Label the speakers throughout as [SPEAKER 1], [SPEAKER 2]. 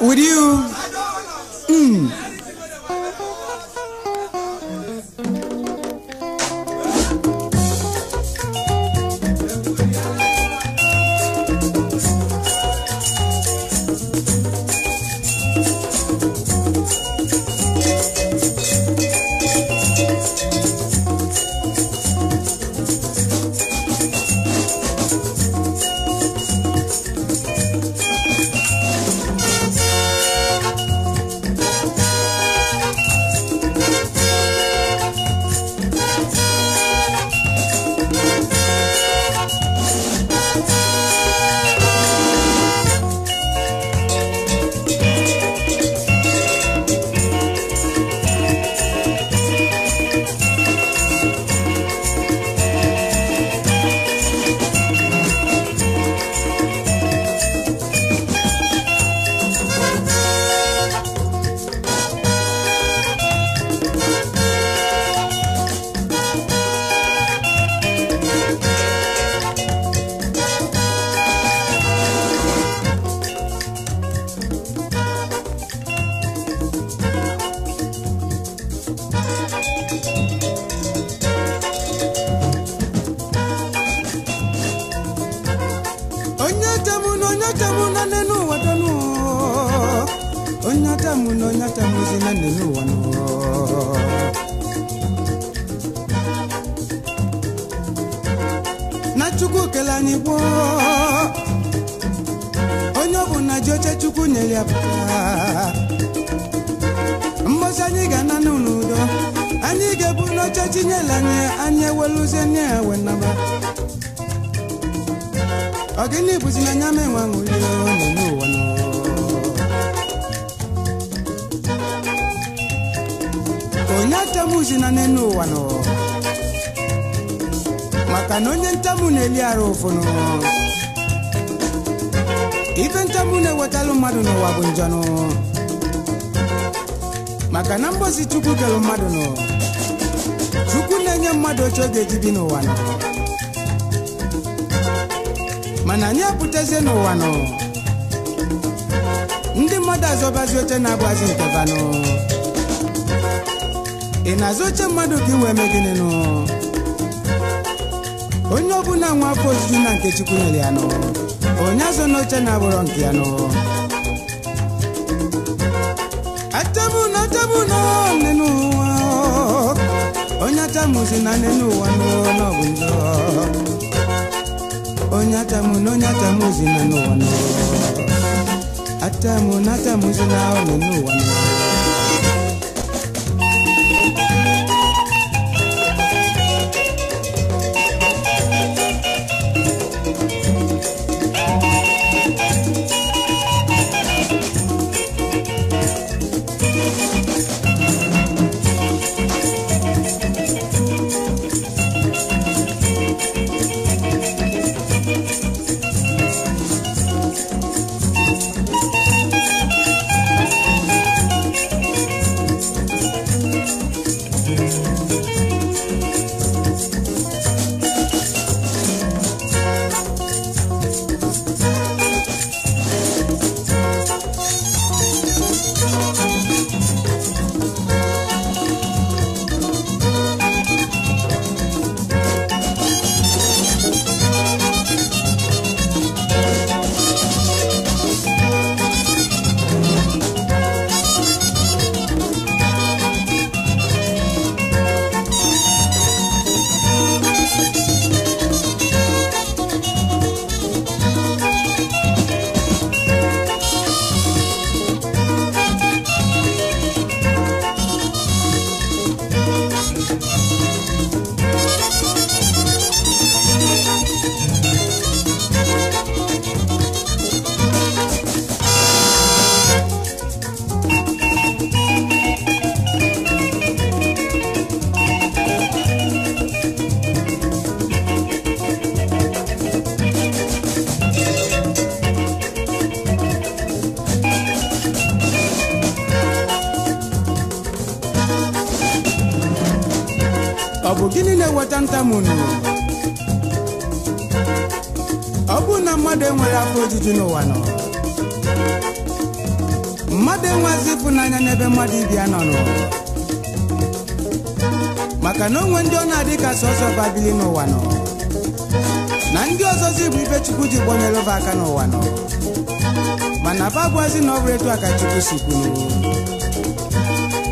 [SPEAKER 1] with you. Mm. na chukwu kele anyị gboo onye ọ bụ na ji oche chukwu nyere ya pụta mbosi anyị ga-ana n'udo anyị ga-ebu n'oche chinyere anyị anyị eweluzie nye ya we naba ọgịnị bụzi na anya m enwe aṅụrị n'ime ụwa n'ụwa onye achamuzi na n'elu ụwa n'ụwa maka na onye ntamu na-eli arụ ụfụnụ ife ntamu na-ewetalụ mmadụ n'ụwa bụ njanụ maka na mgbozi chukwu kelụ mmadụ nụ chukwu na-enye mmadụ oche ga-eji bi n'ụwa nụ. mana anyị apụtazie n'ụwa nụ. ndị mmadụ azọbazi oche na-abụazi banụ ị na-azụ oche mmadụ ka iwe eme gịnị nụ onye ọbụla nwa afọ ojuju na nke Chukwu nyere ya nụ onye azụ n'oche na-abụrọ nke ya nụ achamuno achamuno nne n'ụwa onye atamuzi na nne n'ụwa n'ọbụ njọ onye achamuno onye atamuzi na n'ụwa n'ụwa na atamuzi na nne n'ụwa n'ụwa munu ọ bụrụ na mmadụ enwere afọ ojuju n'ụwa nọ mmadụ enwezi n'anya n'ebe mmadụ ibia ya nọ maka na onwe ndị ọ na-adị ka sọsọ babili n'ụwa nọ na ndị ọzọzi bụ ibe chukwu ji gbanyere ụba aka n'ụwa nọ mana babụazi na ọ bụrụ etu a ka chukwu si kwuru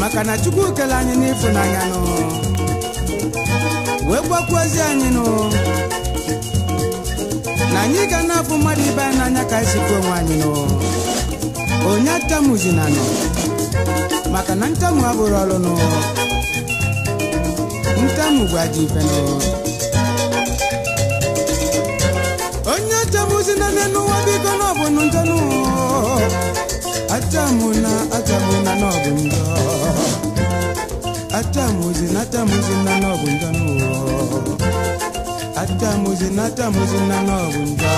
[SPEAKER 1] maka na chukwu kele anyị n'ịfụnanya nọ wee gwakwazi anyị nụ na anyị ga na-afụ mmadụ ibe anyị n'anya ka anyị sikwa onwe anyị nụ onye atamuzina nọ maka na ntamu abụrụ ọrụ nụ ntamu gwaji ife nụ onye atamuzina n'ụwa biko na ọ bụ njọ nụ atamuna atamuna na ọ bụ njọ atamuzi natamuzi nanobunja nuwo atamuzi natamuzi nanobunja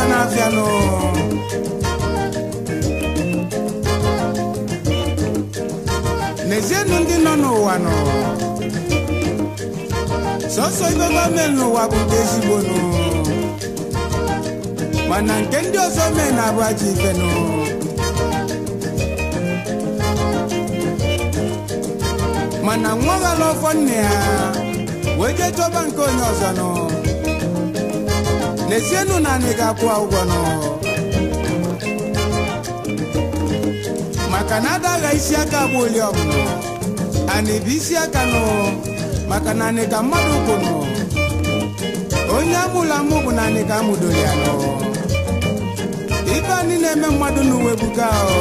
[SPEAKER 1] ga n'abịa nụ n'ezienụ ndị nọ n'ụwa nọ sọsọ ibe gọọmenti n'ụwa bụ nke ezigbo nụ mana nke ndị ọzọ mee na-abụ ajọ ife nụ nne ya wee jee chọba nke onye ọzọ n'ezienụ na anyị ga-akwụ ụgwọ nọ maka na adagha isi aka bụ oli ọbụla anyị bụ isi aka nọ maka na anyị ka mmadụ bụ nọ onye amụla mụ bụ na anyị ka amụdoro ya nọ ibe anyị na-eme mmadụ n'uwe buga ahụ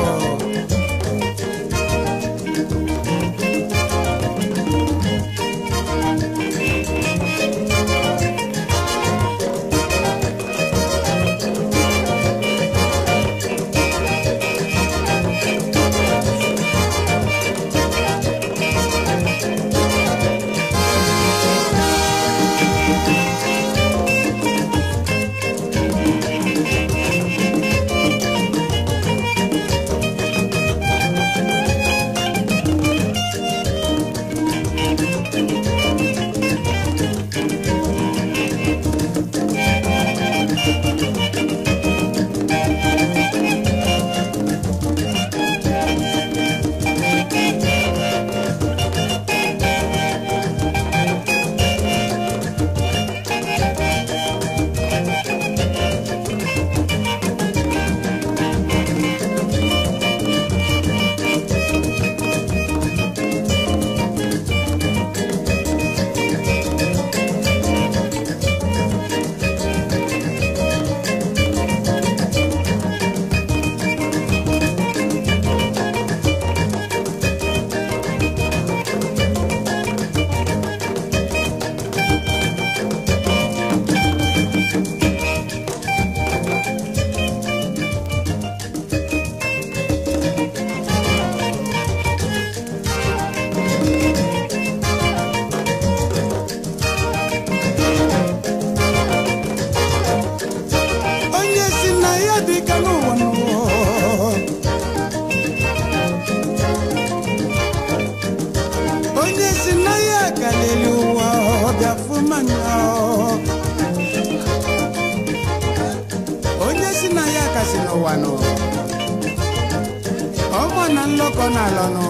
[SPEAKER 1] ọgbọ na nlọkọ n'ala nụ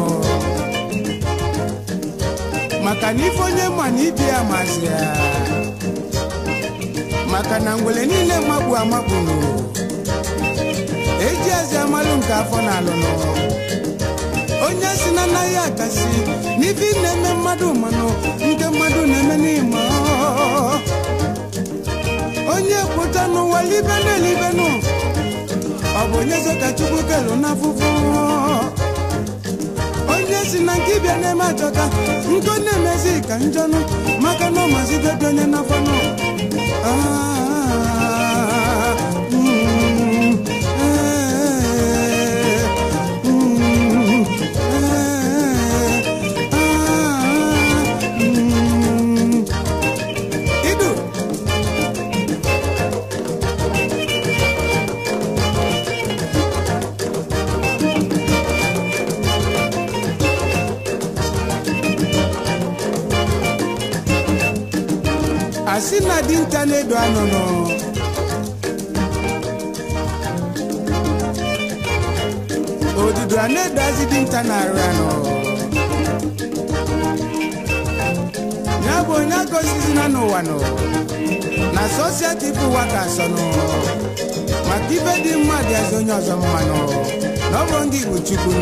[SPEAKER 1] maka na ife onye ma na ibi ya maka na ngwele niile magbu amagburu eji eze amalụ nke afọ n'alụ nụ onye si na anaghị akasi n'ife na-eme mmadụ mmanụ nke mmadụ na-eme n'ime onye kwụta n'ụwa libenụ ọ bụ onye so chukwu kelu n'afụfụ onye si na nke ịbịa na-eme achọka nkọ na-emezi ka njọnụ maka na ọ mazidebe onye n'afọ nọ ah. na dinta na-edo anụnụ odudu a na-edo azị dinta na anụ ya bụ onye agozizina n'ụwa nụ na sosieti bụ ụwa ka asọnụ maka ibe dị mma dị azụ onye ọzọ mmanụ na ọ ndị Igbo Chukwu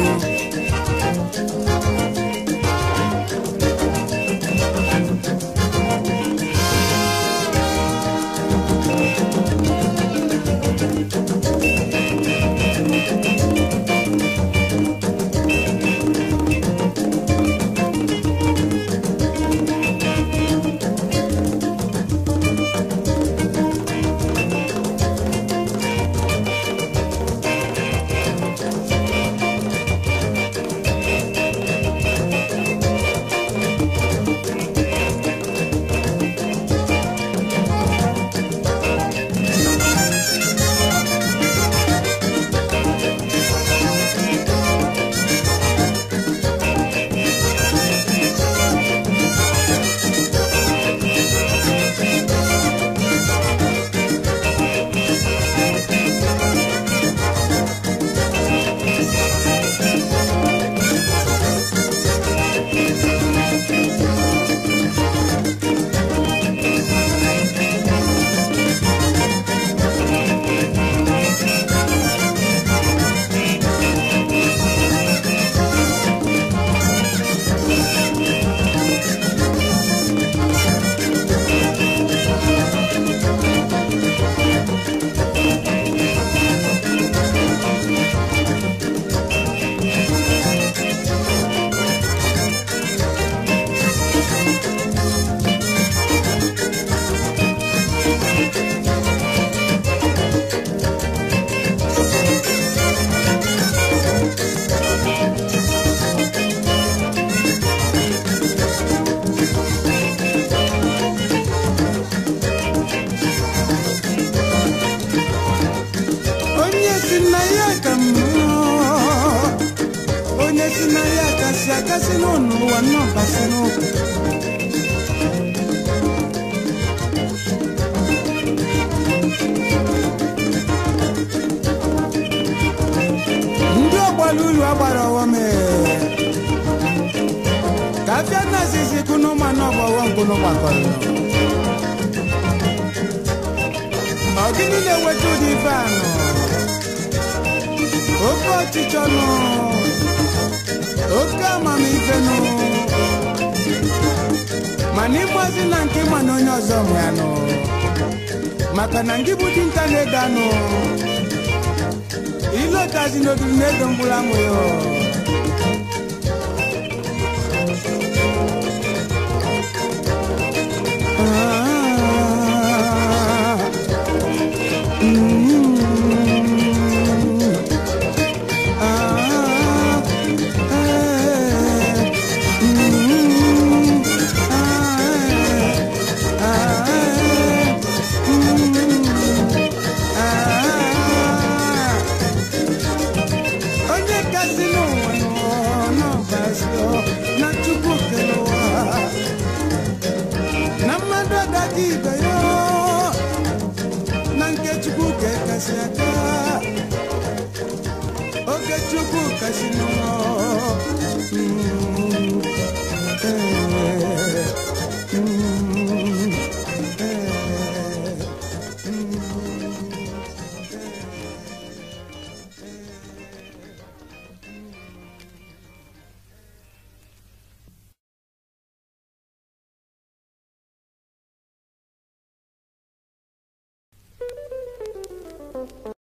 [SPEAKER 1] olu agbara e. ka kafia nazizi kunu mmanụ ọgbọwọ mkpụrụ gbakọrọ ọ gịnị na-enweta ụdị ife anụ oke ọchịchọ nụ oke amamife nụ Mani ịgbazi na nke ịma na onye ọzọ nwe maka na ndị bụ dinta na-ego anụ ile ụtazi na ego mgbụrụ amụ